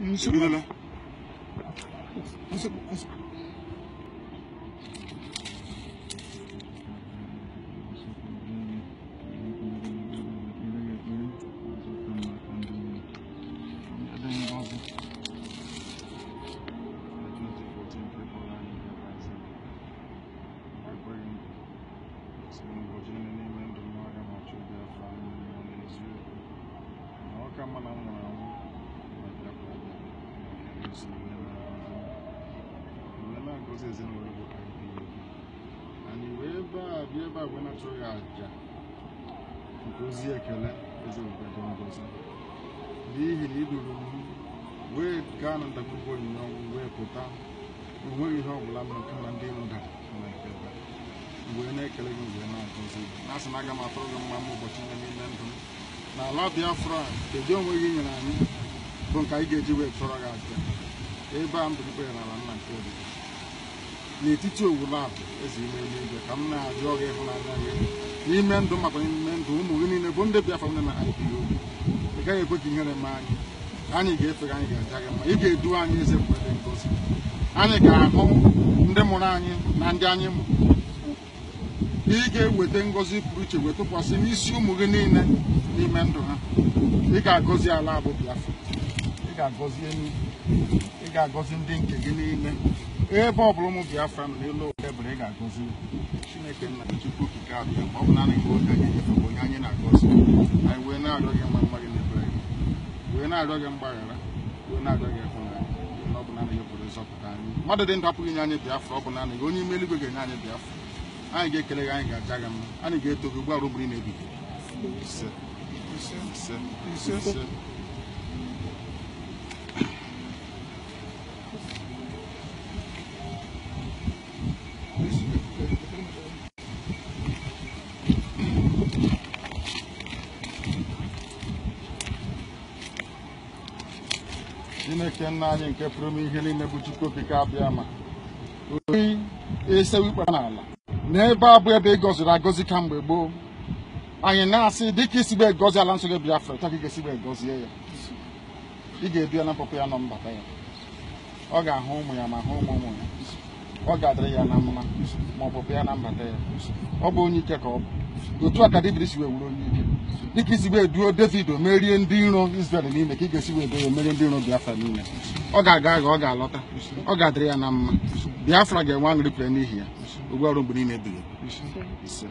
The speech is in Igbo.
masuk dulu lah masuk masuk Come on, I'm na agọzi anyị wee bịa ebe na-achọghị aja nke ozi ekele eze ngozi n'ihi na iduru wee gaa na ndagwurugwu onyinye ọnwụ wee pụta onweghị ihe ọ bụla ndị wee na-ekele gị mgbe asị aga ndụ kedu onwe gị nyere anyị bụ nke anyị ga-eji wee chọrọ gị aja ebe a mbụ ikpe nara nna nke obi n'etiti owulu abụ eze ime eluigwe ka m na-ajụ gị ịhụnanya gị n'ime ndụ maka ime ndụ ụmụ gị niile bụ ndị Biafra ndị na anyị biri obi ị gaghị ekwe ka ihere ma anyị anyị ga-efe gị anyị ga-aja gị ma ị ga-edu anyị eze mgbe ngozi anyị ga-ahụ ndị mụrụ anyị na ndị anyị mụ ị ga-eweta ngozi pụrụ iche wee tụkwasị n'isi ụmụ gị niile n'ime ndụ ha ị ga-agọzi ala abụ Biafra ga-agọzi ị ga-agọzi ndị nke gị niile ebe ọ bụla ụmụ biafra nọ n'elu ebere ị ga-agọzi chineke nna chukwu okike abịa ọ bụ naanị gị oge anyị bụ onye anyị na-agọzi anyị wee na-arịọ gị mma wee na-arịọ gị na-arịọ gị na ọ bụ naanị gị dị ndụ ọ bụ onye ime eluigwe ga-enye anyị biafra anyị ga-ekele gị anyị ga-aja gị mma anyị ga-eto gị na chineke nna anyị nke pụrụ ihe niile bụ chukwu okike abịa ama oyi esewu ikpe n'ala n'ebe a bụ ebe ị gọziri agọzi ka mgbe gboo anyị na-asị dịka isigbe egozi ala nsọ gị Biafra taa ka ị ga-esigbe egozie ya ị ga-ebia na mpụpụ ya nọ mbata ya ọ ga-ahụ ụmụ ya ma hụ ụmụ ụmụ ya ọ ga-adịrị ya na mma ma ọpụpụ ya na mbata ya ọ bụ onye ike ka ọ bụ otu a ka David si wee wuru onye ike dịka isi wee duo david o merie ndị nro israel n'ime ka ị ga-esi wee duo merie ndị iro biafra n'ime ọ ga-aga aga ọ ga-alọta ọ ga-adịrị ya na mma biafra ga-enwe aṅụrị pere n'ihi ya ogbu ọrụ mgbe niile ise